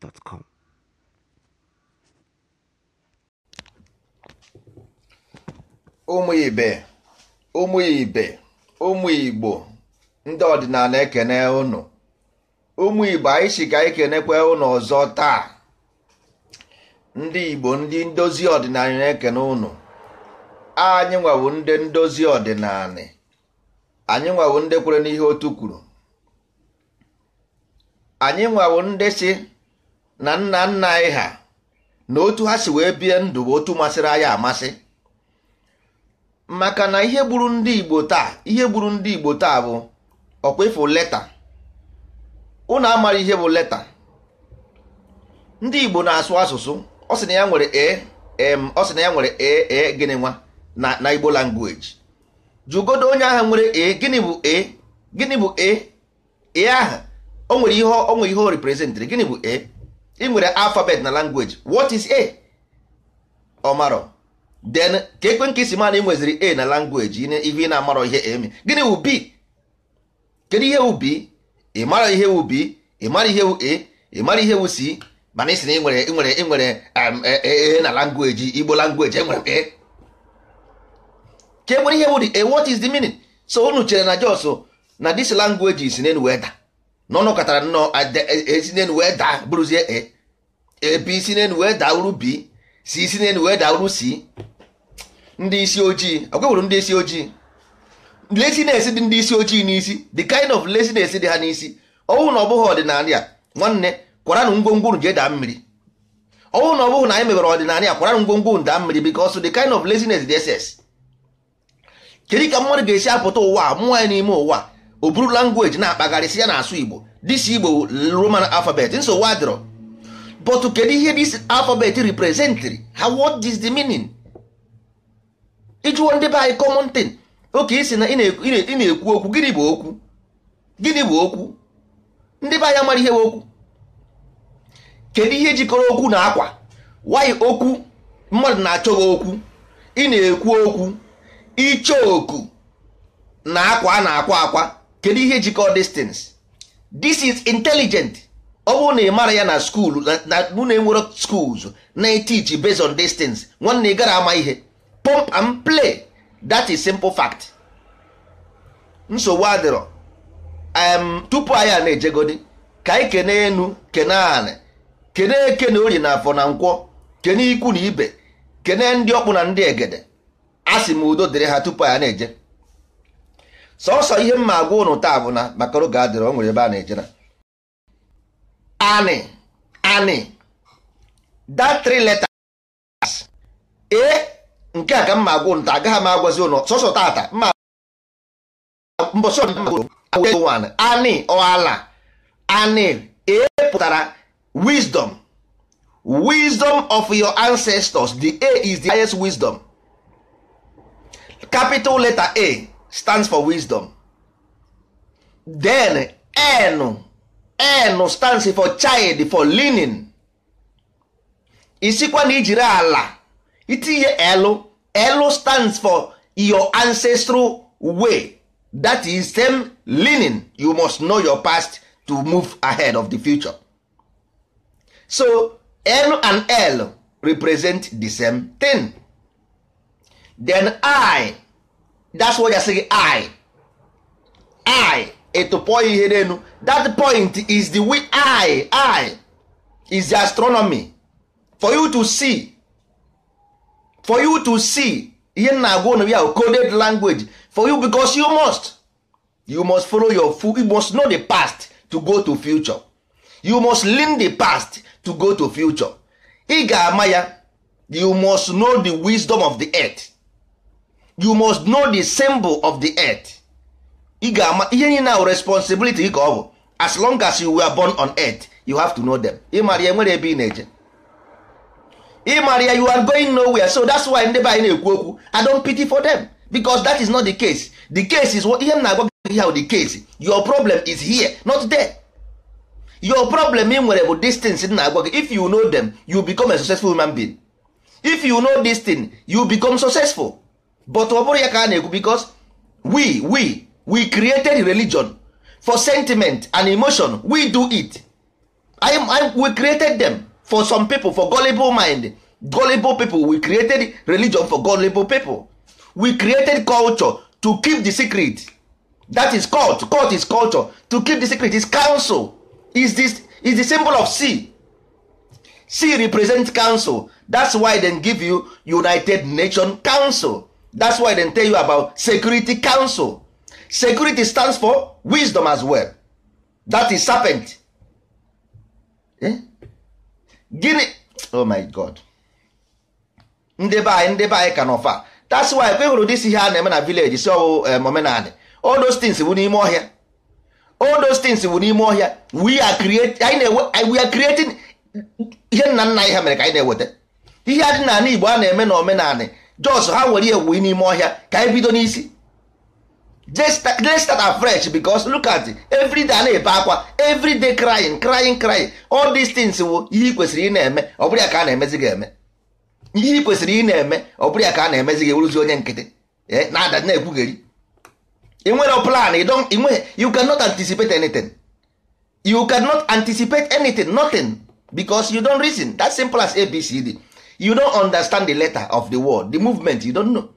gmail.com. Ụmụ ibe ụmụ ibe ụmụ igbo ndị ọdịnala ekene ụnụ ụmụ igbo anyị si ka anyị kenekwe ụnụ ọzọ taa ndị igbo ndị ndozi ọdịnala na-ekene ụnụ anyị nwawo ndị ndozi ọdịnala anyị nwawo ndị kwere n'ihe otu kwuru anyị nwawo ndị si na nna nna anyị ha na otu ha si wee bie ndụ bụ otu masịrị anyị amasị maka na ihe gburu ndị Igbo taa ihe gburu ndị Igbo taa bụ ọkwa leta unu amara ihe bụ leta ndị Igbo na-asụ asụsụ ọ sị na ya nwere e ọ na ya nwere e, e gịnị nwa na Igbo language jụgodo onye ahụ nwere e gịnị bụ e gịnị bụ e e aha o nwere ihe o nwere reprezentịrị gịnị bụ e ị nwere alfabet na language what is a ọmarọ then ka ekwe nke isi mana ị nweziri a na language ihe ị na-amarọ ihe eme gịnị wụ b kedu ihe wụ b ị mara ihe wụ b ị mara ihe wụ a ị mara ihe wụ c mana isi na ị nwere nwere nwere ee um, e, e, na langweji igbo langweji enwere m e ka e nwere ihe wụ the a what is the meaning so unu chere na jos na this language is na weda na katara nnọọ esi e, e, n'elu wee daa bụrụzie e ebi isi n'elu wee daa uru bi si isi n'elu wee daa uru si ndị isi ojii akwewuru ndị isi ojii lesines dị ndị isi ojii n'isi the kind of lesines dị ha n'isi ọnwụ na ọ bụghị ọdịnala a nwanne kwaranụ ngwongwo unu jee daa mmiri ọnwụ na ọ bụghị na anyị mebere ọdịnala a kwaranụ ngwongwo unu daa mmiri because the kind of laziness dị ss kedu ka mmadụ ga-esi apụta ụwa mụọ anyị n'ime ụwa a. o buru langweji na-akpagharịsị ya na-asụ igbo dis igbo roman alfabet nsogbu adịrọ but kedu ihe dis alfabet representịrị ha what is the meaning ịjụwo ndị be anyị common tin oke isi na ị na-ekwu okwu gịnị bụ okwu gịnị bụ okwu ndị be anyị amara ihe okwu kedu ihe jikọrọ okwu na akwa wayị okwu mmadụ na-achọ gị okwu ị na-ekwu okwu ịchọ oku na akwa a na-akwa akwa kedu ihe jikọ distance this is intelligent ọ bụrụ na ị mara ya na skul na na enwere schools na-etiji based on distance nwanne ị gara ama ihe pump and play that is simple fact nsogbu adịrọ tupu anyị a na-ejegodi ka anyị kene enu kene anị kene eke na ori na afọ na nkwọ kene ikwu na ibe kene ndị ọkpụ na ndị egede a sị m udo dịrị ha tupu anyị na-eje sọsọ ihe mma agwa ụnụ taa bụ na maka oge adịrị o nwere ebe a na-eje ani. ani. anị that three letters e nke a ka mma agwa ụnụ taa agaghị m agwazi ụnụ sọsọ tata mma mbọsọ ani ọala ani. e pụtara wisdom wisdom of your ancestors the a is the highest wisdom capital letter a stands for wisdom then n n stands for child for leaning isikwa na ijiri ala itinye stands for your ancestral way that is same leaning you must know your past to move ahead of the future so n and l represent the same thing then i that's why gasị gị i i ịtụpọ ihe n'elu that point is the way i i is the astronomy for you to see for you to see ihe m na-agwa ụnụ ya coded language for you because you must you must follow your food you must know the past to go to future you must learn the past to go to future ị ga-ama ya you must know the wisdom of the earth you must know the symbol of the earth ị ga-ama ihe niile ahụ responsibility gị ka ọ bụ as long as you were born on earth you have to know them ịmara ya nwere ebe ị na-eje ịmara ya you are going nowhere so that's why ndị be anyị na-ekwu okwu i don't pity for them because that is not the case the case is ihe m na-agwa gị how the case your problem is here not there your problem ị nwere bụ distance m na-agwa gị if you know them you become a successful human being if you know this thing you become successful but ọ bụrụ ya ka a na-ekwu because we we we created religion for sentiment and emotion we do it I, I, we created them for some people for gullible mind gullible people we created religion for gullible people we created culture to keep the secret that is cult cult is culture to keep the secret is council is this is the symbol of c c represents council that's why dem give you united nation council that's why dem tell you about security council security stands for wisdom as well that is serpent eh? gini oh my god ndeba anyị ndị anyị ka n'ọfa that's why kwe hụrụ dis ihe a na-eme na village si ọwụ eh, omenanị all those things bụ n'ime ọhịa all those things bụ n'ime ọhịa we are creating we are creating ihe nna nna anyị ha mere ka anyị na-eweta ihe a dị n'ala Igbo a na-eme na omenanị jos ha nwere ihe wuyi n'ime ọhịa ka anyị e bido n'isi let's start afresh because look at every day a na-ebe akwa every crying crying crying all dis things bụ ihe ị kwesịrị ị na-eme ọ bụrụ ya ka a na-emezi gị eme ihe ị kwesịrị ị na-eme ọ bụrụ ya ka a na-emezi gị eweruzi onye nkịtị eh, na-ada na-ekwugheri ị plan ị nweghị you cannot anticipate anything you cannot anticipate anything nothing because you don reason that simple as ABCD you don understand the letter of the word the movement you don't know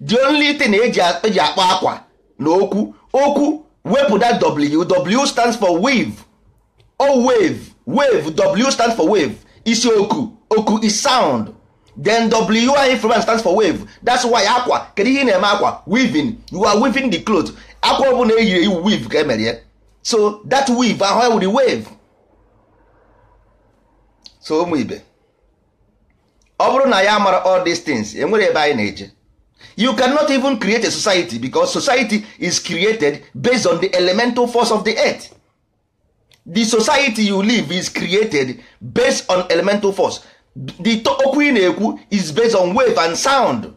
the only thing eji eji akpọ akwa na okwu okwu wepụ that w w stands for wave o wave wave w stands for wave isi oku oku is sound then w program stands for wave that's why akwa kedu ihe na-eme akwa weaving you are weaving the cloth akwa ọbụla eyiri iwu e weave ka emere ya so that weave ahụ wụrụ wave so ụmụ ibe ọ bụrụ na ya mara all these things enwere ebe anyị na-eje you cannot even create a society because society is created based on the elemental force of the earth the society you live is created based on elemental force the okwu ị na-ekwu is based on wave and sound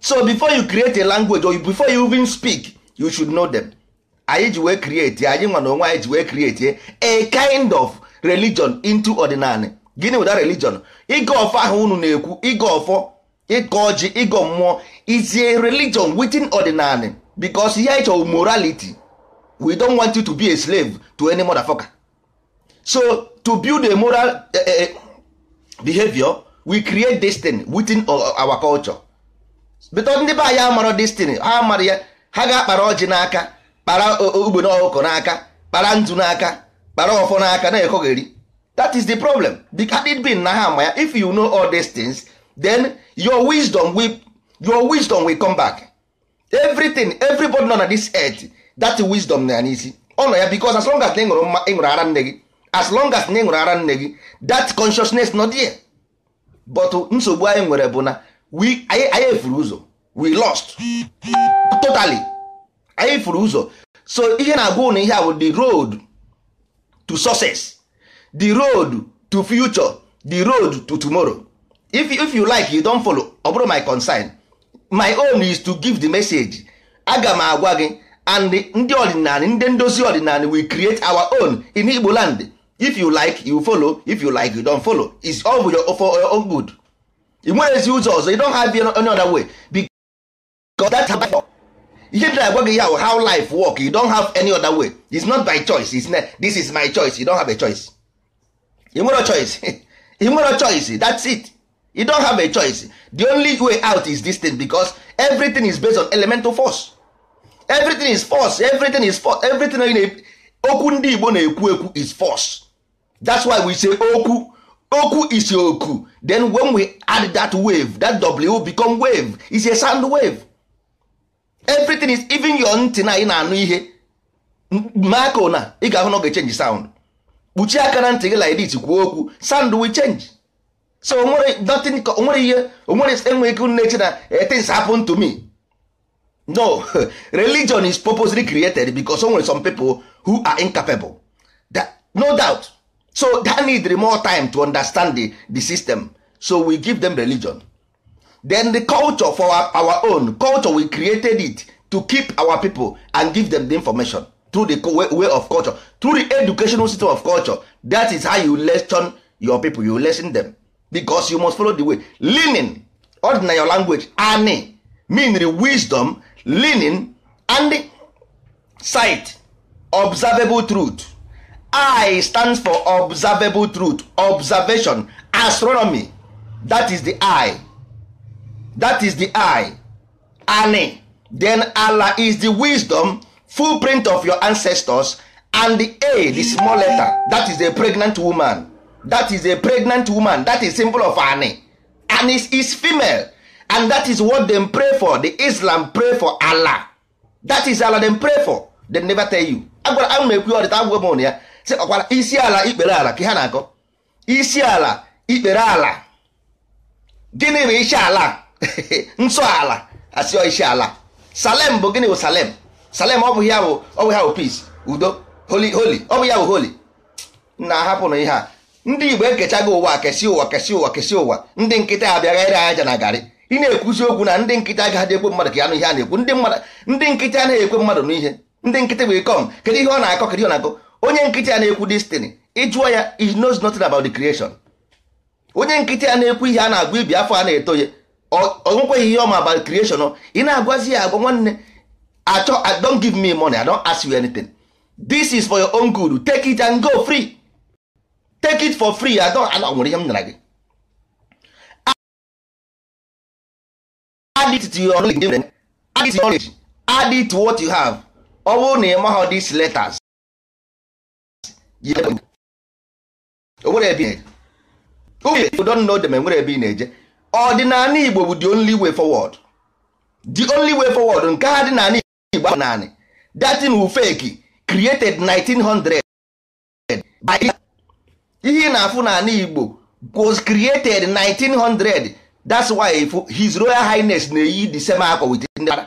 so before you create a language or before you even speak you should know them anyị ji wee create anyị nwa na onwe wee create a kind of religion into ordinary gịnị that religion ịga ọfọ ahụ unu na-ekwu ịga ọfọ ịga ọjị ịga mmụọ izie religion within ordinary because ihe ịchọ morality we don't want you to be a slave to any mother motherfucker so to build a moral uh, behavior we create destiny within our culture bito ndị be anyị amara destiny ha amara ya ha ga-akpara ọjị n'aka kpara ogbe ọkụkọ n'aka kpara ntụ n'aka kpara ọfọ n'aka na-ekogheri that is the problem had it been na ha ya if you know all these things then your wisdom will, your wisdom will come back everything everybody nọ na this earth that wisdom na ya n'isi ọ nọ ya because as long as na ịṅụrụ ịṅụrụ ara nne gị as long as na ịṅụrụ ara nne gị that consciousness not there but nsogbu anyị nwere bụ na we anyị furu ụzọ we lost totally anyị furu ụzọ so ihe na-agwa na ihe a bụ the road to success the road to future the road to tomorrow if, if you like you don follow ọ bụrụ my concern my own is to give the message aga m agwa gị and ndị ọdịnala ndị ndozi ọdịnala we create our own in Igbo land if you like you follow if you like you don follow it's all for your, for your own good ị nwere ezi ụzọ ọzọ you don have any other way because that's how ihe dị agwa gị ya how life work you don have any other way it's not by choice is this is my choice you don have a choice. you choice you choice that's it you don't have a choice the only way out is this thing because everything is based on elemental force everything is force everything is force everything in okwu ndị Igbo na-ekwu ekwu is force that's why we say okwu okwu is oku then when we add that wave that w become wave is a sound wave everything is even your ntị na ị na-anụ ihe mako na ị ga-ahụ na ọ ga-echenji sound kpuchie aka na ntị gị like this kwuo okwu sand will change so onwere nothing onwere ihe onwere enweghị ike na na eh, things happen to me no religion is purposely created because onwere some people who are incapable that, no doubt so that need more time to understand the, the system so we give them religion then the culture for our, our own culture we created it to keep our people and give them the information through the way of culture through the educational system of culture that is how you lesson your people you lesson them because you must follow the way leaning ordinary your language Aani meaning wisdom leaning and sight observable truth i stands for observable truth observation astronomy that is the eye that is the eye Aani. then allah is the wisdom full print of your ancestors and the a the small letter that is a pregnant woman that is a pregnant woman that is symbol of ani and is, is female and that is what dem pray for the islam pray for allah that is allah dem pray for dem never tell you agwara a m ekwu ọdịta agwụgwọ m ya Si ọkwara isi ala ikpere ala ka ha na-akọ isi ala ikpere ala gịnị bụ isi ala nsọ ala asịọ isi ala salem bụ gịnị bụ salem salem ọ bụ ya bụ ọ bụ ya bụ peace udo holi holi ọ bụ ya bụ holi na ahapụ na ihe a ndị igbo ekechago ụwa kesi ụwa kesi ụwa kesi ụwa ndị nkịta abịaghị ere aja na garị ị na-ekwuzi okwu na ndị nkịta agaghị ekwe mmadụ ka ya nụ ihe a na-ekwu ndị nkịta anaghị ekwe mmadụ n'ihe ndị nkịta bụ ikom kedu ihe ọ na-akọ kedu ihe ọ na-akọ onye nkịta na-ekwu destiny ịjụọ ya he knows nothing about the creation onye nkịta na-ekwu ihe a na-agwa ibi afọ a na-etoye ọ nwekweghị ihe ọma about creation ị na-agwazi ya agwa nwanne achọ i don't give me money i don ask you anything this is for your own good take it and go free take it for free i don't ana nwere ihe m nara gị add it to your knowledge add it to your knowledge add it to what you have ọ bụrụ na ị maghị these letters onwere ebe na-eje uwe you don't know them enwere ebe ị na-eje ọdịnala Igbo bụ the only way forward the only way forward nke ha dị n'ala igbo naanị datin ufeki created 1900 by ihe na-afụ n'ala igbo was created 1900 that's why his royal highness na-eyi the same akwa with that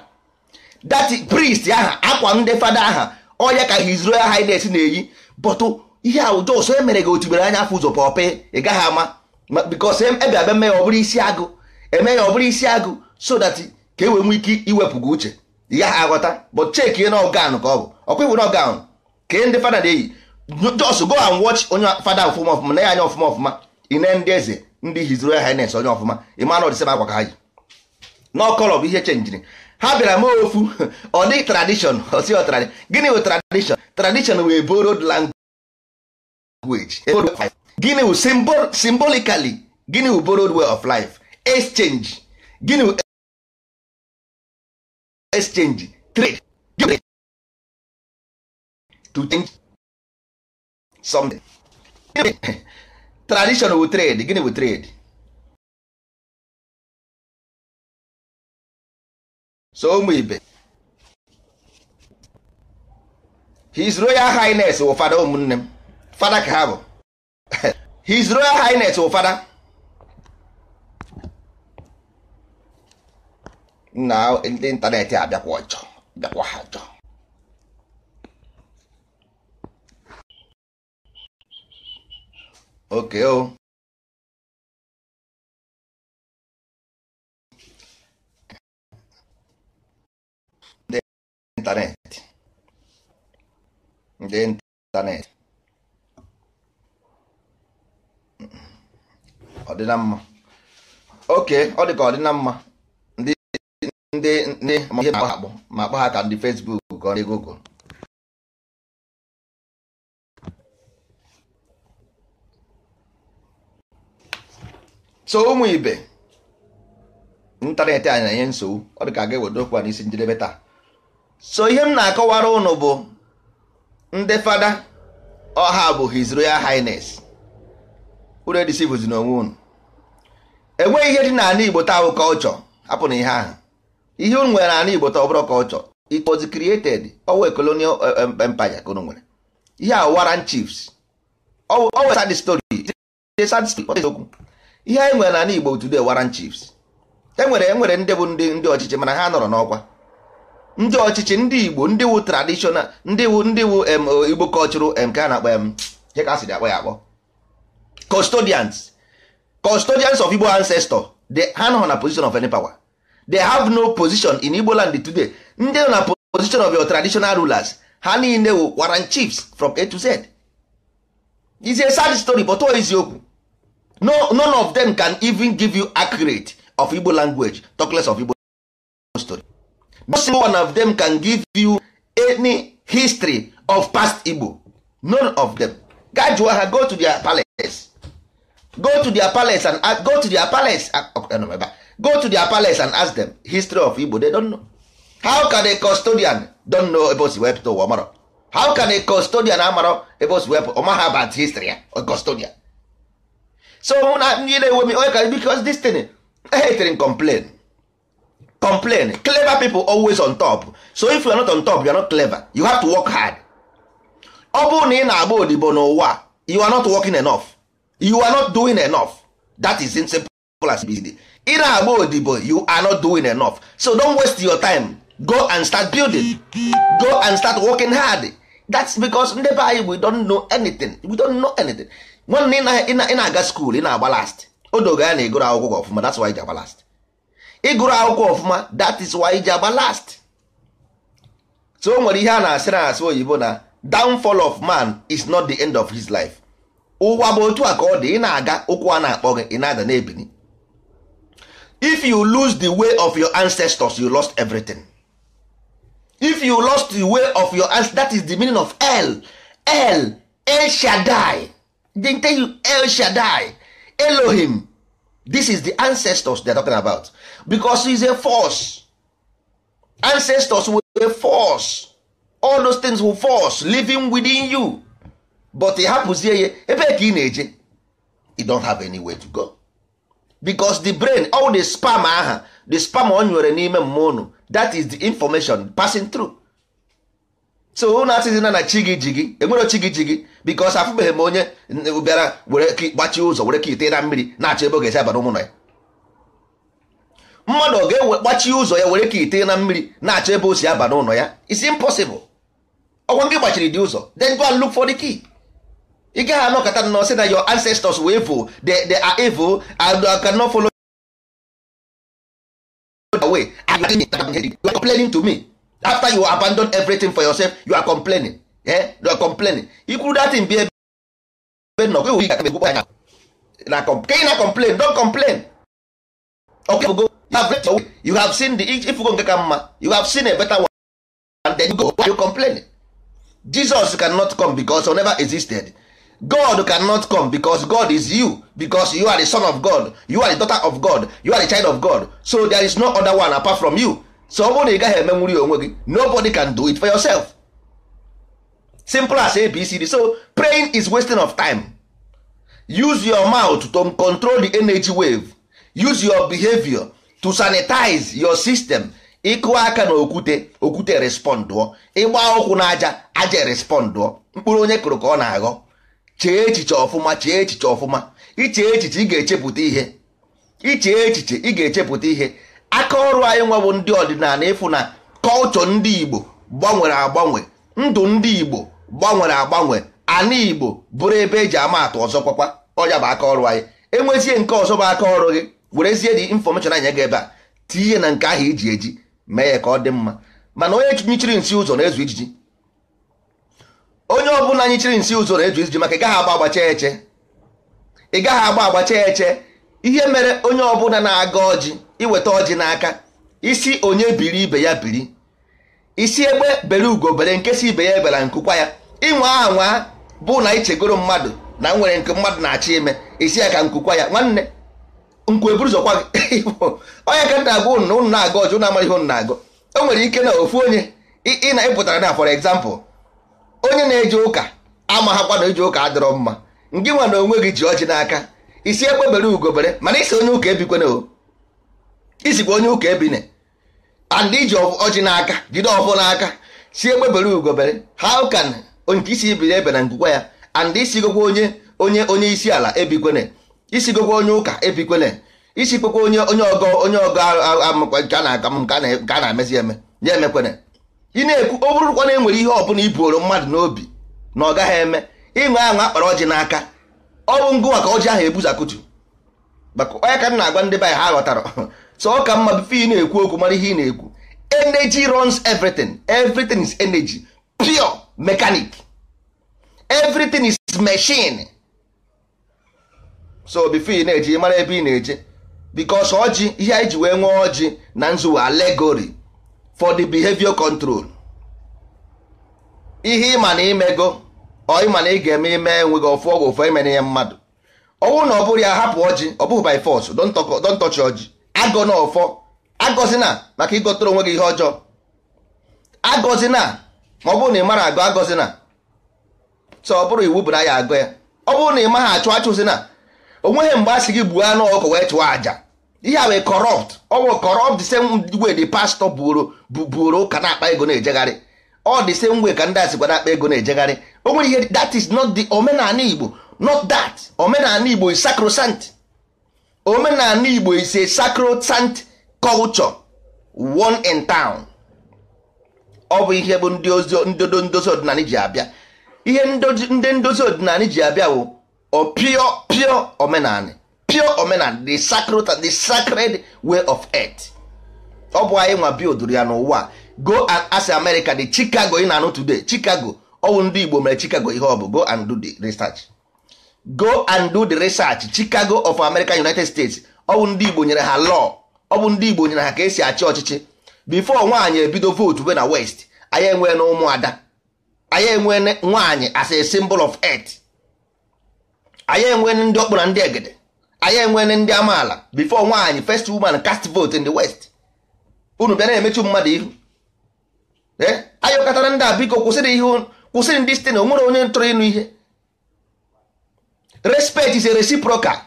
priest aha akwa ndị fada aha ọya ka his royal highness na-eyi but ihe awụjọ ụsọ emere gị otubere anya afọ ụzọ pọpe ị gaghị ama because ebe abịa mee ya ọ bụrụ isi agụ eme ya ọ bụrụ isi agụ so that ka e wee nwee ike iwepụ gị uche ị gaghị aghọta bụ check ihe na ọgan ka ọ bụ ọkwa iwu na ọgan kee ndị fada na-eyi just go and watch onye fada ọfụma ọfụma na ya anya ọfụma ọfụma ine ndị eze ndị His ya Highness onye ọfụma ịma na ọdịsị akwa ka ha yi n'ọkọlọ bụ ihe chenjiri ha bịara ma ofu ọ dị tradishọn osi ọtradi gịnị wụ tradishọn tradishọn wee borod language e gịnị wụ symbolically gịnị wụ borod way of life exchange gịnị exchange trade give to change something tradition wu trade gịnị wu trade so ụmụ ibe his royal highness wụ fada ụmụnne m fada ka ha bụ his royal highness wụ fada na ndị ịntanetị abịakwa ọjọ bịakwa ha ọjọ oke o ndị ịntanetị ndị ịntanetị ọ dị na mma oke ọ dị ka ọ dị na mma ndị ndị ma ihe akpọ ma akpọ ha ka ndị Facebook ka ndị Google so ụmụ ibe ịntanetị anyị na-enye nsogbu ọ dị ka ga ewedo okwu a n'isi njedebe taa so ihe m na-akọwara ụnụ bụ ndị fada ọha bụ his royal highness unu edisivụzi n'onwe unu enweghị ihe dị n'ala Igbo taa bụ kọlchọ hapụ na ihe ahụ ihe unu nwere n'ala Igbo ọ bụrụ ka ọ chọrọ it was created owe colonial eh, empire ka unu nwere ihe a Warren Chiefs owe sad story ihe anyị nwere n'ala Igbo today Warren Chiefs e, e nwere ndị bụ ndị ndị ọchịchị mana ha nọrọ n'ọkwa ndị ọchịchị ndị Igbo ndị wu traditional ndị wu ndị wu eh, Igbo cultural nke a na-akpọ ihe ka asịrị akpọ ya akpọ custodians custodians of Igbo ancestor ha nọ na position of any power they have no position in Igbo land today ndị na position of your traditional rulers ha niile wụ waran chiefs from A to Z is a sad story but is eziokwu no none of them can even give you accurate of Igbo language talk less of Igbo story no single one of them can give you any history of past Igbo none of them ga ha go to their palace go to their palace and uh, go to their palace ah, go to their palace and ask them history of Igbo they don't know how can a custodian don't know ebe o si wepụta ụwa how can a custodian amarọ about o si wepụ ọmaha about history or eh? custodian so na ndị na-enwe m because this thing ehetere complain complain clever people always on top so if you are not on top you are not clever you have to work hard ọ bụrụ na ị na-agba odibo n'ụwa you are not working enough you are not doing enough that is simple as it is ị na-agba odibo you are not doing enough so don't waste your time go and start building go and start working hard that's because ndị be anyị we don't know anything we don't know anything nwanne ị na-aga skuul ị na-agba last odoga ya na ịgụrụ akwụkwọ ọfụma that's why ị ji agba last ịgụrụ akwụkwọ ọfụma that is why ị ji agba last so o nwere ihe a na-asị na asị oyibo na downfall of man is not the end of his life ụwa bụ otu a ka ọ dị ị na-aga ụkwụ a na-akpọ gị ị na-ada na-ebini if you lose the way of your ancestors you lost everything if you lost the way of your ancestors that is the meaning of el el el shaddai they tell you el shaddai elohim this is the ancestors they are talking about because is a force ancestors were a force all those things were force living within you but e happens. ya ebe ka ị na-eje you don't have way to go bicos the brain all the spam aha the spam ọ nwere n'ime mmụọ unu that is the information passing through so unu asịzina na chi gị ji gị enwero chi gị ji gị because afụbeghị m onye bịara were gbachie ụzọ were ka ite na mmiri na-achọ ebe ọ ga-esi abara ụmụnọ ya mmadụ ọ ga-ewe gbachie ụzọ ya were ka ite na mmiri na-achọ ebe o si aba n'ụlọ ya it's impossible ọgwa gị gbachiri dị ụzọ then go and look for the key. ị gaghị anọkọta nọ sị na your ancestors were evil they, they are evil and I cannot follow the way you are complaining to me after you abandon everything for yourself you are complaining eh? you are complaining ikwuru datin bi ebe nọ gị wụ anya na ka ị na complain don complain okay, you, have read your way. you have seen the ifugo nke ka mma you have seen a better one and then you go you complain Jesus cannot come because he never existed god cannot come because god is you because you are the son of god you are the daughter of god you are the child of god so there is no other one apart from you so ọ bụrụ na ị gaghị emenwuri onwe gị nobody can do it for yourself simple as abcd so praying is wasting of time use your mouth to control the energy wave use your behavior to sanitize your system ịkụ aka na okwute okwute respondụọ ịgba ụkwụ na aja aja respondụọ mkpụrụ onye kụrụ ka ọ na-aghọ chee echiche ọfụma chee echiche ọfụma iche echiche ị ga-echepụta ihe iche echiche ị ga-echepụta ihe aka ọrụ anyị nwa bụ ndị ọdịnala ịfụ na kọlchọ ndị Igbo gbanwere agbanwe ndụ ndị Igbo gbanwere agbanwe ana Igbo bụrụ ebe eji ama atụ ọzọ kwakwa ọya bụ aka ọrụ anyị enwezie nke ọzọ bụ aka ọrụ gị werezie dị infọmeshọn anyị ga ebe a tinye na nke ahụ iji e eji mee ya ka ọ dị mma mana onye chiri nsi ụzọ na-ezu ijiji onye ọbụla anyị chiri nsi ụzọ na-eju iji maka ị gaghị agba agbacha eche ị gaghị agba chee eche ihe mere onye ọbụla na-aga ọjị iweta ọjị n'aka isi onye biri ibe ya biri isi egbe bere ugo bere nke si ibe ya ebela nkụkwa ya ịnwe aha nwa bụ na ichegoro mmadụ na nwere nke mmadụ na-achọ ime isi ya ka nkụkwa ya nwanne nkwu eburu zọkwa gị onye ka nna agụ ụnụ na-aga ọjị ụnụ amara ihe ụnụ na-agụ o nwere ike na ofu onye ị na-ịpụtara na for example onye na-eje ụka amaghakwa na eji ụka adịrọ mma nke nwa na onwe gị ji ọjị n'aka isi bere ugobere mana isi onye ụka ebikwana o isikwa onye ụka ebine and iji ọjị n'aka jide ọfọ n'aka si bere ugobere how can nke isi ibiri ebe na ngụkwa ya and isigokwa onye onye onye isi ala ebikwene isigokwa onye ụka ebikwene isikwekwa onye onye ọgọ onye ọgọ nke a na m nke a na-emezi eme ya emekwene ị na-ekwu ọ bụrụkwa na enwere ihe ọbụla iboro mmadụ n'obi na ọ gaghị eme ịṅụ aṅụ akpara ọjị n'aka ọ bụ ngụ maka ọjị ahụ ebuzakutu maka onye ka m na-agwa ndị be anyị ha ghọtara so ọ ka mma bife ị na-ekwu okwu mara ihe ị na-ekwu energy runs everything everything is energy pure mechanic everything is machine so bife ị na-eje mara ebe ị na-eje because ọjị ihe anyị ji wee nwee ọjị na nzuwe alegory for the behavior control ihe ịma na imego ọ ịma na ị ga-eme ime enweghị ọfụ ọgwụ ofe imere ihe mmadụ ọnwụ na ọ bụrụ ya hapụ ọjị ọ bụghị by force don't touch ọjị agọ na ọfọ agọzi na maka ịgọtara onwe gị ihe ọjọọ agọzi na ma ọ bụrụ na ị mara agọ agọzi na so ọ bụrụ iwu bụ na ya agọ ya ọ bụrụ na ị maghị achụ achụ si na onweghị mgbe a sị gị gbuo anụ ọkụ wee chụọ àjà ihe a wee corrupt ọwụ corrupt the same way the pastor buoro buoro ụka na-akpa ego na-ejegharị ọ the same way ka ndị asịkwa na-akpa ego na-ejegharị o nwere ihe that is not the omenala Igbo not that omenala Igbo is sacrosanct omenala Igbo is a sacrosanct culture one in town ọ bụ ihe bụ ndị ndozi ọdịnala ji abịa ihe ndị ndozi ọdịnala ji abịa bụ pure pure omenala pure omenala the sacred the sacred way of earth ọ bụ anyị nwa bildụrụ ya n'ụwa go and ask America the Chicago ị na-anụ today Chicago ọwụ ndị Igbo mere Chicago ihe ọ bụ go and do the research go and do the research Chicago of America United States ọwụ ndị Igbo nyere ha law ọ ndị Igbo nyere ha ka esi achị ọchịchị before nwaanyị ebido vote we na west anyị enwee na ụmụada anyị enwee nwaanyị as a symbol of earth anyị enwee ndị ọkpụ na ndị egede anya enwere ndị amaala before nwaanyị first woman cast vote in the west unu bịa na-emechu mmadụ ihu eh? anyị ụkọtara ndị a biko kwụsịrị ihe kwụsịrị ndị site na o nwere onye ntụrụ ịnụ ihe respect is a reciprocal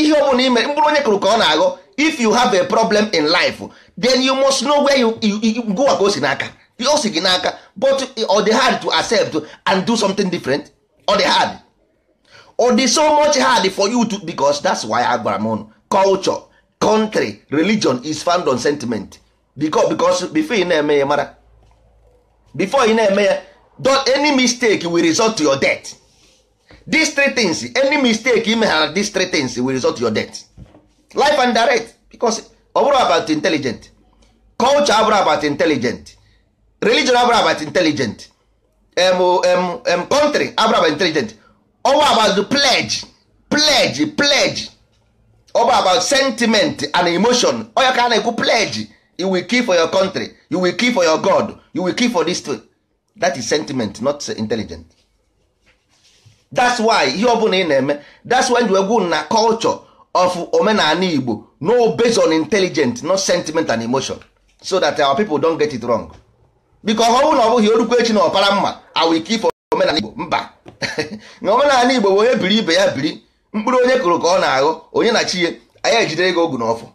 ihe ọ bụla ime mkpụrụ onye kụrụ ka ọ na-aghọ if you have a problem in life then you must know where you go ka si n'aka o si gị n'aka but ọ dị hard to accept and do something different ọ dị hard ọ dị so much hard for you to because that's why agwara m culture country religion is found on sentiment because because before e na-eme ya mara before ị na-eme ya don't any mistake will result to your death these three things any mistake ime ha these three things will result to your death life and direct because ọ bụrụ about intelligent culture abụrụ about intelligent religion abụrụ about intelligent em em em country abụrụ about intelligent all about pledge pledge pledge all about sentiment and emotion onye ka a na-ekwu pledge you will kill for your country you will kill for your god you will kill for this thing that is sentiment not intelligent that's why ihe ọbụla ị na-eme that's why you egwu na culture of omenala igbo no based on intelligent not sentiment and emotion so that our people don't get it wrong because ọ bụrụ na ọ bụghị orukwu echi na ọpara mma i will kill for omenala igbo mba na omenala igbo bụ onye biri ibe ya biri mkpụrụ onye kụrụ ka ọ na aghụ onye na chi ya anyị ejidere gị ogu n'ọfụ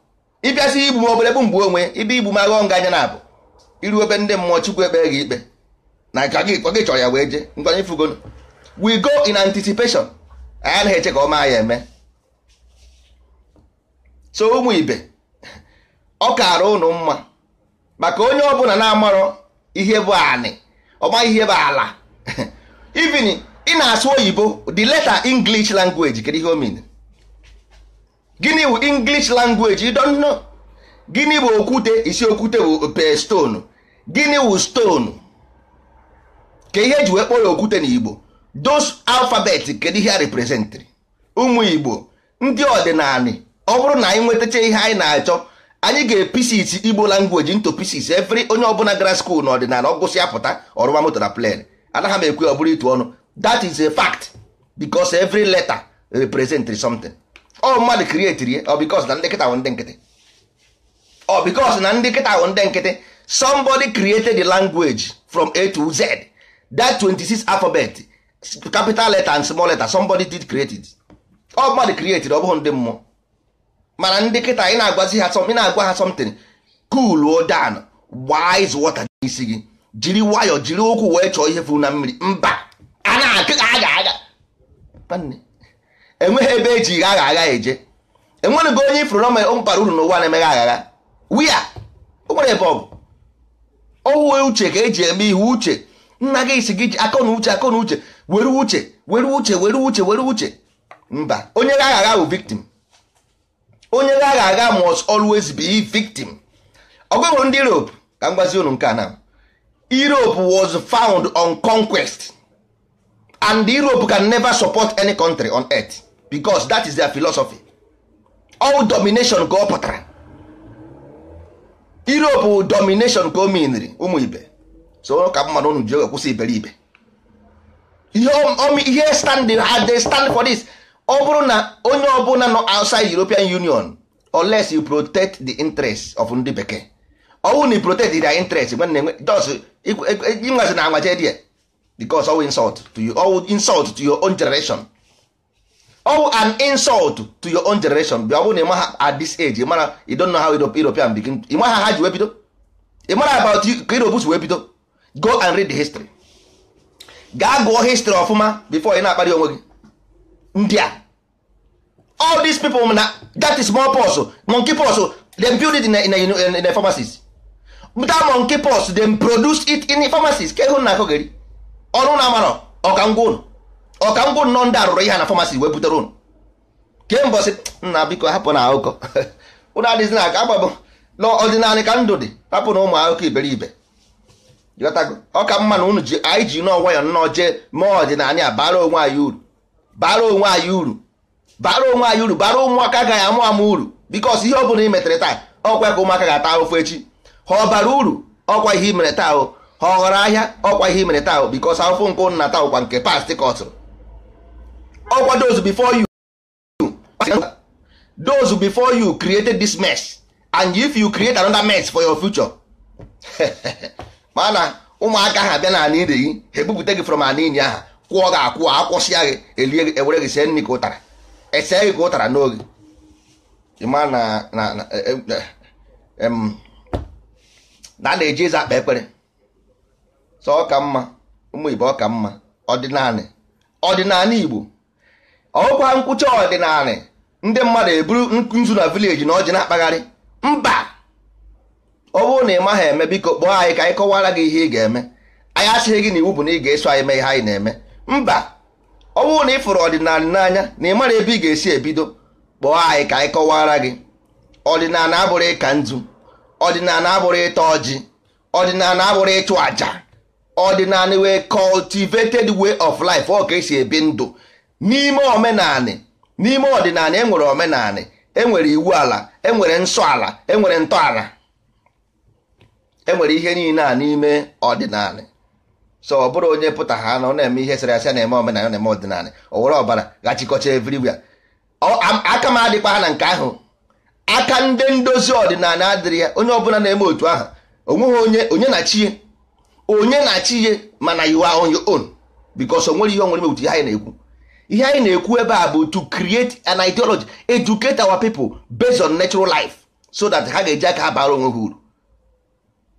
ịbịasị igbu m obere bụ mgbe onwe ibe igbu m aghọ nga anya na abụ iru ebe ndị mmụọ chukwu ekpe gị ikpe na ka gị chọrọ ya wee jee ngwanye fugon we go in anticipation anyị anaghị eche ka ọma ya eme so ụmụ ibe ọ kaara ụnụ mma maka onye ọbụla na-amarọ ihe bụ anị ọma ihe bụ ala ivini ị na-asụ oyibo the letter english language kedu ihe o gịnị bụ english language you gịnị bụ okwute isi okwute bụ ope stone gịnị bụ stone ka ihe ji wee kpọrọ okwute na igbo dos alphabet kedu ihe a representịrị ụmụ igbo ndị ọdịnala ọ bụrụ na anyị nwetacha ihe anyị na-achọ anyị ga-episis igbo language nto pisis every onye ọbụla gara skuul na ọdịnala ọ gụsịa pụta ọrụma moto na plen anaghị m ekwe ọ bụrụ itu ọnụ that is a fact because every letter represent something ọ mmadụ create ọ because na ndị nkịta bụ ndị nkịtị ọ because na ndị nkịta bụ ndị nkịtị somebody created the language from A to Z that 26 alphabet capital letter and small letter somebody did create it ọ mmadụ create ọ bụghị ndị mmụọ mana ndị nkịta ị na-agwazi ha ị na-agwa ha something cool o down gbaa izu wọta n'isi gị jiri nwayọọ jiri ụkwụ wee chọọ ihe furu na mmiri mba a na-akịga agha agha enweghị ebe eji agha agha eje enweghị onye ifuru na bara uru n'ụwa na-emeghe agha wia o nwere ebe ọ bụ ọwụ uche ka eji eme ihe uche nna gị si gị ji akọ na uche akọ na uche were uche were uche were uche were uche mba onye agha agha bụ victim onye agha agha must always be victim ọgụgụ ndị Europe ka m gwazi unu nke a na Europe was found on conquest and Europe can never support any country on earth because that is their philosophy all domination ka ọ pụtara Europe domination ka o miniri ụmụ ibe so ka mmadụ unu ji oge kwụsị iberibe ihe stand ha they stand for this ọ bụrụ na onye ọbụla nọ outside European Union unless you protect the interest of ndị bekee ọwụ na protect their interest nwanne nwe jos ịnwazi na anwaje die because all insult to you all insult to your own generation all an insult to your own generation be all bụrụ na ịmaha at this age ịmara you don't know how European begin ịmaha ha ji wee bido ịmara about you ka Europe wee bido go and read the history gaa gụọ history ọfụma before ị na-akparị onwe gị ndị a all these people na that is small pox monkey pox dem build it in a, in a, in pharmacies that monkey pox dem produce it in a pharmacies ka ịhụ na akụ gari ọrụ na amarọ ọka ngwa ụnụ ọka ngwa nọ ndị arụrụ ihe na famasi wee butere ụnụ kee mbọsị nna biko hapụ na akụkọ ụnụ adịghịzi na aka agbabụ n'ọdịnala ka ndụ dị hapụ na ụmụ akụkọ iberibe ọka mma na ụnụ ji anyị ji nọọ nwayọ nnọọ jee mee ọdịnala ya bara onwe anyị uru bara onwe anyị uru bara onwe anyị uru bara ụmụaka gaghị amụ amụ uru bikos ihe ọ bụla i metere taa ọkwa ka ụmụaka ga-ata ahụfụ echi ha ọ bara uru ọkwa ihe i mere taa ha ọ ghọrọ ahịa ọkwa ihe mere taa bikos afọ nkụ nna taa ụkwa nke past kọtụrụ ọkwa those before you those before you created this mess and if you create another mess for your future mana ụmụaka ha bịa na ire gị ha ebupụta gị from ala inyi aha kwụọ gị akwụ akwụsịa gị gị gị ka ụtara na-eji eze akpa ekpere so ka mma ụmụ Igbo ọka mma ọdịnanị ọdịnanị Igbo ọkwa nkwụcha ọdịnanị ndị mmadụ eburu nzu na vileji na ọjị na-akpagharị mba ọ bụrụ na ị maghị eme biko kpọọ anyị ka anyị kọwara gị ihe ị ga-eme anyị asịghị gị na iwu bụ na ị ga-eso anyị mee ihe anyị na-eme mba ọ bụrụ na ị fụrụ ọdịnala n'anya na ị mara ebe ị ga-esi ebido kpọọ anyị ka anyị kọwara gị ọdịnala abụrụ ịka nzu ọdịnala abụrụ ịta ọjị ọdịnala abụrụ ịchụ àjà ọdịnala wee cultivated way of life ọ ka esi ebi ndụ n'ime omenanị n'ime ọdịnala enwere omenanị enwere iwu ala enwere nsọ ala enwere ntọala enwere ihe niile a n'ime ọdịnala so ọ bụrụ onye pụta ha na ọ na-eme ihe sara asị na-eme omenala na-eme ọdịnala o were ọbara gachikọcha everywhere aka m adịkwa ha na nke ahụ aka ndị ndozi ọdịnala adịrị ya onye ọbụla na-eme otu ahụ onweghị onye onye na chie onye na-achị ihe mana you are on your own because onwere ihe onwere mewutu ihe anyị na-ekwu ihe anyị na-ekwu ebe a bụ to create an ideology educate our people based on natural life so that ha ga-eji aka ha bara onwe ha uru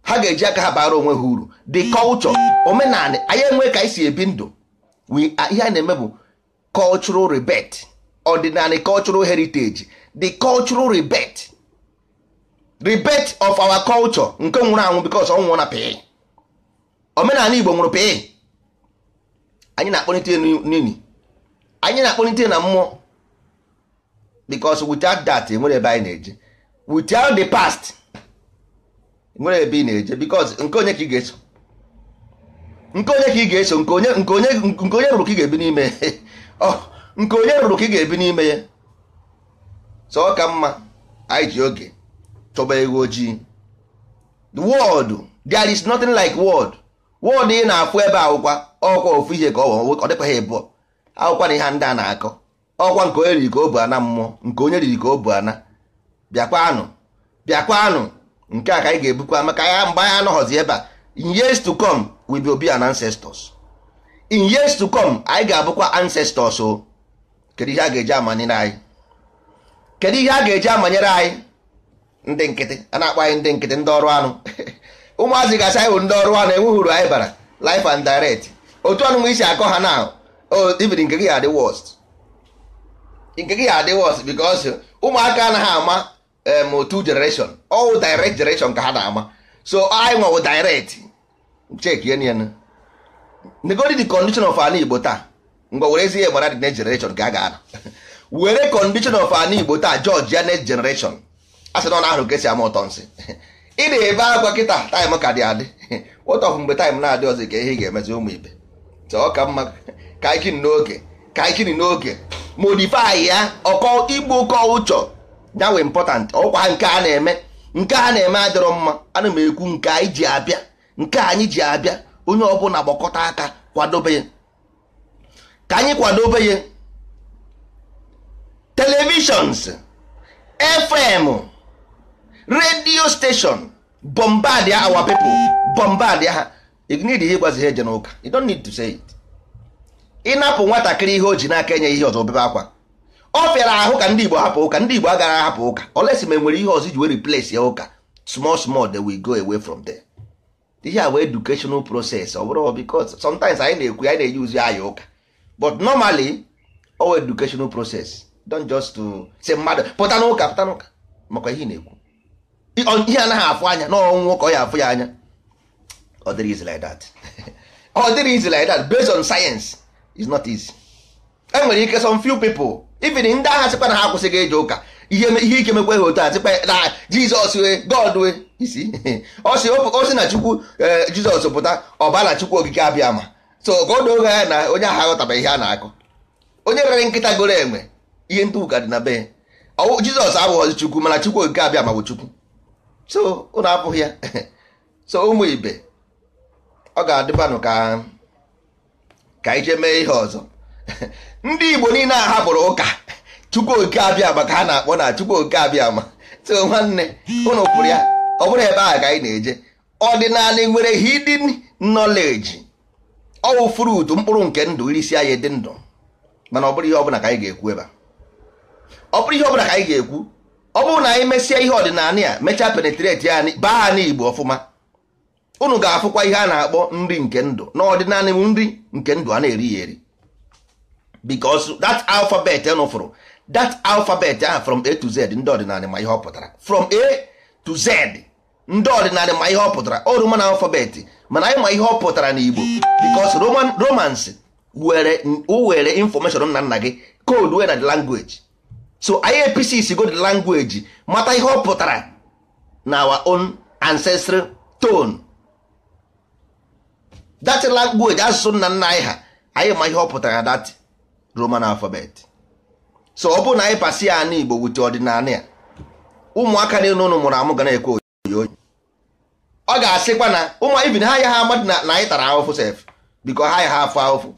ha ga-eji aka ha bara onwe ha uru the culture omenala anyị enwe ka anyị si ebi ndụ ihe anyị na-eme bụ cultural rebet ordinary cultural heritage the cultural rebirth rebirth of our culture nke nwụrụ anwụ because ọ nwụrụ na pee omenala igbo nwụrụ pịị anyị na-akpọlite n'ili anyị na akpọnite na mmụọ because without that enwere ebe anyị na-eje without the past e nwere ebe ị na-eje because nke onye ka ị ga-eso nke onye ka ị ga-eso nke onye nke onye nke onye rụrụ ka ị ga-ebi n'ime oh, nke onye rụrụ ka ị ga-ebi n'ime ya so ọ ka mma anyị ji oge chọba egwu ojii the world there is nothing like world wọdụ ị na afụ ebe akwụkwa ọkwa ofu ije ka ọ dịkwa ha ịbụọ akwụkwa na ihe ndị a na-akọ ọkwa nke onye riri ka o bu ana mmụọ nke onye riri ka o bu ana bịakwanụ bịakwanụ nke a ka anyị ga-ebukwa maka ya mgbe anyị anọghọzi ebe a in years to come we will be an ancestors in years to come anyị ga-abụkwa ancestors o kedu ihe a ga-eji amanyere anyị kedu ihe a ga-eji amanyere anyị ndị nkịtị a na-akpọ anyị ndị nkịtị ndị ọrụ anụ ụmụazị gasị anyị ndị ọrụ ha na-enweghị uru anyị bara life and direct otu ọnụnwa isi akọ ha na even nke gị adị worst nke gị adị worst because ụmụaka anaghị ama otu generation all direct generation ka ha na-ama so anyị nwewo direct chekie n negodi the condition of ala igbo taa ngwa were ezi gbara dị next generation ka a ga-ana were condition of ala igbo taa judge ya next generation a sị na ọ na ahụ ka ama ụtọ nsị ị na-ebe agwa kịta taịm ka dị adị bụ mgbe taịm na-adị ọzọ ka ihe ga-emezi ụmụ ibe ọ ka mma ka n'oge n'oge modifai ya ọkọ igbu ụkọ ụchọ nyawe important ọkwa nke a na-eme nke a na-eme adịrọ mma ana m ekwu nke anyị ji abịa nke anyị ji abịa onye ọbụla gbakọta aka kwadobe ka anyị kwadobe ya televishọns fm radio station bombard our people bombard ha ignid ihe gwazi ha eje n'ụka you don't need to say it ịnapụ nwatakịrị ihe o ji n'aka enye ihe ọzọ obebe akwa ọ fịara ahụ ka ndị igbo hapụ ụka ndị igbo agaghị ahapụ ụka olesi ma enwere ihe ọzọ iji wee replace ya ụka small small they we go away from there ihe a bụ educational process ọ bụrụ because sometimes anyị na-ekwu anyị na-eyi uzi aya ụka but normally all educational process don't just to say mmadụ pụta n'ụka pụta n'ụka makwa ihe na-ekwu ihe anaghị afụ anya n'ọnwụ nwoke ọ ya afụ ya anya ọ dịrị easy based on science is not easy e nwere ike some few people even ndị agha sịkwa na ha akwụsịghị ije ụka ihe ike mekwe ha otu a sịkwa na jizọs wee god wee isi o si na chukwu eh, jizọs pụta ọbara chukwu ogige abịa ma so ka ọ doo ya na onye agha ghọtaba ihe a na-akụ onye rere nkịta goro enwe ihe ndị ụka dị na be jizọs abụghọzi chukwu mana chukwu ogige abịa ma bụ chukwu so ụnụ apụghị ya so ụmụ ibe ọ ga-adịbanụ ka ka ije mee ihe ọzọ ndị Igbo niile a hapụrụ ụka Chukwu oke abịa maka ka ha na-akpọ na Chukwu oke abịa ma so nwanne ụnụ kwụrụ ya ọ bụrụ ebe ahụ ka anyị na-eje ọdịnala nwere hidden knowledge ọwụ fruit mkpụrụ nke ndụ irisi anyị dị ndụ mana ọ bụrụ ihe ọbụla ka anyị ga-ekwu ebe a ọ bụrụ ihe ọbụla ka anyị ga-ekwu ọ bụrụ na anyị mesịa ihe ọdịnala ya mechaa penetrate ya baa anyị igbo ọfụma unu ga-afụkwa ihe a na-akpọ nri nke ndụ n'ọdịnala m nri nke ndụ a na-eri ya eri because that alphabet unu fụrụ that alphabet ahụ from a to z ndị ọdịnala ma ihe ọ pụtara from a to z ndị ọdịnala ma ihe ọ pụtara o roman alphabet mana anyị ma ihe ọ pụtara igbo because roman romans were were information nna nna gị code were na the language so IAPC si go the language mata ihe ọ pụtara na our own ancestral tone that language asụsụ nna nna anyị ha anyị ma ihe ọ pụtara that Roman alphabet so ọ bụrụ na anyị pasi ya Igbo wute ọdịnala ya ụmụaka na ụnụ mụrụ amụ ga na-ekwe oyi ọ ga-asịkwa na ụmụ ha ya ha amadị na anyị tara ahụfụ sef biko ha ya ha afọ ahụfụ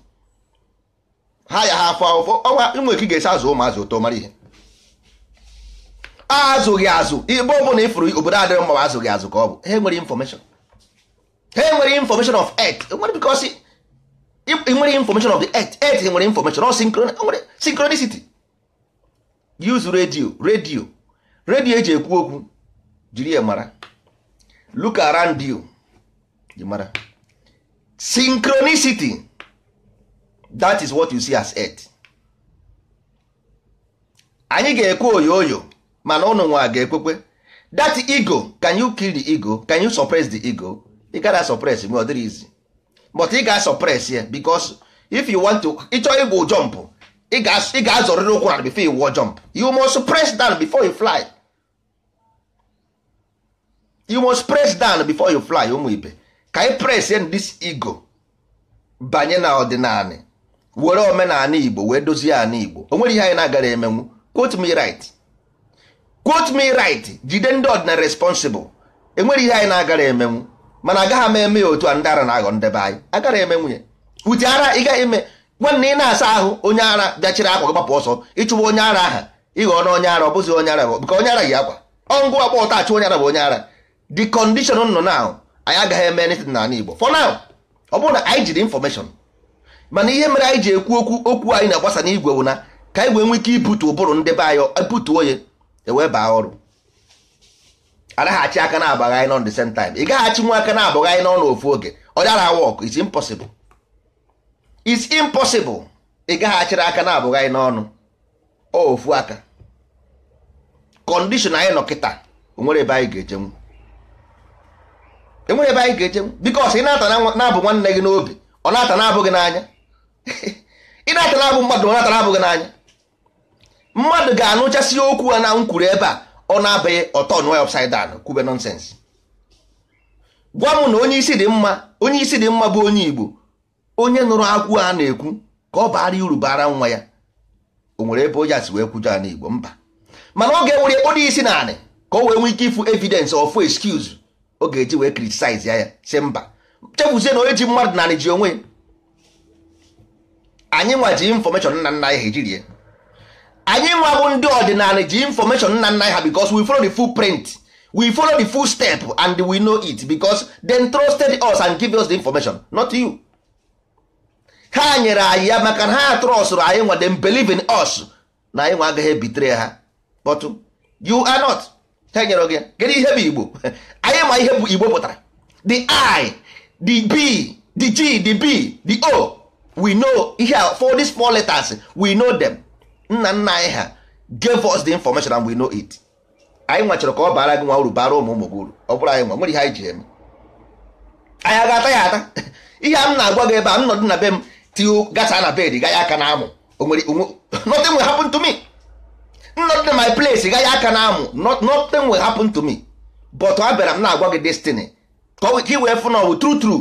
ha ya ha afọ ahụfụ ọnwa ụmụ eke ga-esi azụ ụmụazụ ụtọ mara ihe azụghị azụ igbe na ifuru obodo adịrị mma azụghị azụ ka ọ bụ ha nwere infọmeshọn ha nwere infọmeshọn of earth nwere bikọsi nwere infọmeshọn of the earth earth nwere infọmeshọn ọ nwere sinkronicity use radio radio radio eji ekwu okwu jiri ya mara look around you mara synchronicity that is what you see as earth anyị ga-ekwu oyo oyo mana ụnụ nwa ga-ekwekwe that ego can you kill the ego can you suppress the ego ị gara suppress mgbe ọ dịrị izi but ị ga suppress ya because if you want to ịchọ ịgwụ jump ị ga-azọrịrị ụkwụ na before you jump you must press down before you fly you must press down before you fly ụmụ ibe ka ị press in this ego banye na ọdịnala were omenala igbo wee dozie ala igbo o nwere ihe anyị na-agara emenwu quote me right quote me right jide ndị ọdịna responsible enwere ihe anyị na-agara emenwu mana agaghị m eme ya otu a ndị ara na-aghọ ndebe anyị agara emenwu ya uti ara ị gaghị nwanne ị na-asa ahụ onye ara bịachiri akwa gị gbapụ ọsọ ịchụwa onye ara aha ịghọ na onye ara ọ bụzi onye ara bụ bụka onye ara yi akwa ọngụ agba ụta achụ onye ara bụ onye ara the condition nọ na anyị agaghị eme anything n'ala Igbo for now ọ bụrụ na anyị jiri infọmeshọn mana ihe mere anyị ji ekwu okwu okwu anyị na-agbasa n'igwe bụ na ka anyị wee ike ibutu ụbụrụ ndebe anyị ibutu onye ewee baa ọrụ agaghachi aka na-abagha anyị n'on the same time ị gaghachi nwa aka na-abagha anyị n'ọnụ ofu oge ọdara wọk is impossible is impossible ị gaghachiri aka na-abụghị anyị n'ọnụ ofu aka kọndishọn anyị nọ kịta onwere ebe anyị ga-ejenwu enwere ebe anyị ga-ejenwu bikos ị na-ata na-abụ nwanne gị n'obi ọ na-ata na-abụghị n'anya ị na-ata na-abụ mmadụ ọ na-ata na-abụghị n'anya mmadụ ga-anụchasị okwu a na nkwuru ebe a ọ na-abaghị ọtọ nụọ ya upside kwube nonsense gwa m na onye isi dị mma onye isi dị mma bụ onye Igbo onye nụrụ akwụ a na-ekwu ka ọ baara uru bara nwa ya o nwere ebe onye asi wee kwujọ ala Igbo mba mana ọ ga-ewere onye isi naanị ka o wee nwee ike ịfụ evidence of excuse ọ ga-eji wee criticize ya ya si mba chefuzie na onye ji mmadụ naanị ji onwe anyị nwa ji infọmeshọn nna nna anyị ha ejirie anyị nwa bụ ndị ọdịnala ji infọmeshon nna nna ha because we follow the full print we follow the full step and we know it because they trusted us and give us the information not you ha nyere anyị ya maka na ha trọstụrụ anyị nwa dem believe in us na anyị nwa agaghị ebitere ha but you are not ha nyere gị gịnị ihe bụ igbo anyị ma ihe bụ igbo pụtara the i the b the g the b the o we know ihe for these small letters we know them. nna nna anyị ha gave us the information and we know it anyị nwa ka ọ bara gị nwa uru bara ụmụ ụmụ gị uru ọ bụrụ anyị nwa nwere ihe anyị ji eme anyị ga-ata ya ata ihe a m na-agwa gị ebe a m nọdụ na be m tiu gasa na bed gaghị aka na amụ nothing will happen to me nnọdụ na my place gaghị aka na amụ nothing will happen to me but abịara m na-agwa gị destiny ka ị wee fụ na ọ bụ true true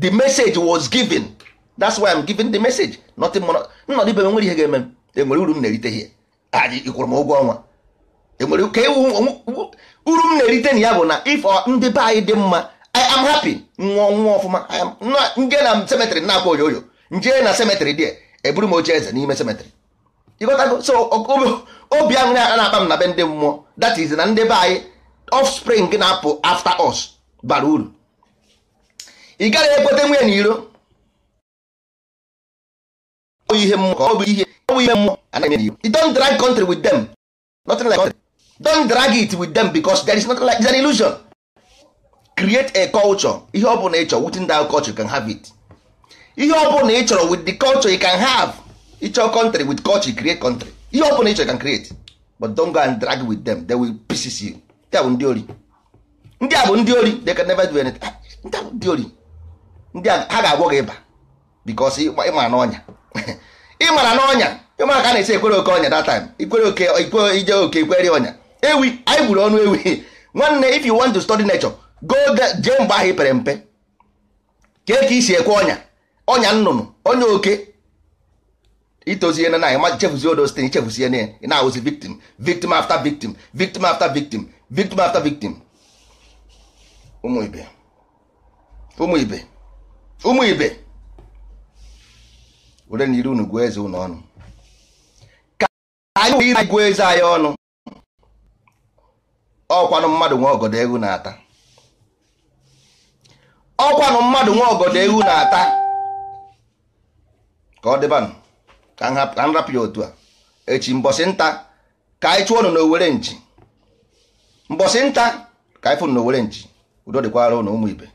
the message was given that's why I'm giving the message nothing more nọdụ ibe m nwere ihe ga-eme m enwere uru m na-erite ihe ịkwụrụ m ụgwọ ọnwa enwere ka uru m na-erite na ya uh, bụ na ifọ ndị be anyị dị mma I am happy nwụọ nwụọ ọfụma nje na semetrị na-akwa oyoyo nje na semetrị dị eburu m oche eze n'ime semetrị ịghọtago so obi aṅụrị na-akpa m na be ndị mmụọ that is na ndị be anyị spring na-apụ after us bara uru ị gaghị ekpote nwunye iro ọ bụ ihe mmụọ ọ bụ ihe ọ bụ ihe mmụọ anaghị eme you don't drag country with them nothing like country don't drag it with them because there is nothing like it's an illusion create a culture ihe ọ bụla ị chọrọ within that culture you can have it ihe ọ bụla ị chọrọ with the culture you can have ịchọ country with culture you create country ihe ọ bụla ị chọrọ you can create but don't go and drag with them they will pieces you ndị a bụ ndị ori ndị a bụ ndị ori they can never do anything ah, ndị a bụ ndị ori ndị a ha ga-agwọ gị ịba because ịma n'ọnya ị mara na ọnya ịmara ka a na-esi ekwere oke ọnya datam time ikwere oke ije oke ikwere ọnya ewi anyị gburu ọnụ ewi nwanne if you want to study nature go jee mgbe ahụ pere mpe kee ka isi ekwe ọnya ọnya nnụnụ ọnya oke itozie na anyị ma chefuzie odo site ichefuzie na ị na-awụzi victim victim after victim victim after victim victim after victim ụmụ ibe ụmụ ibe ụmụ ibe were na iri unu gụọ eze unu ọnụ ka anyị iri gụọ eze anyị ọnụ ọkwanụ mmadụ nwa ọgọdọ ewu na-ata ọkwanụ mmadụ nwa ọgọdọ ehu na-ata ka ọ dịbanụ ka m rapụ ya otu a echi mbọsị nta ka anyị chụọ nụ na owere nji mbọsị nta ka anyị fụnụ na owere nji udo dịkwara ụnụ ụmụ ibe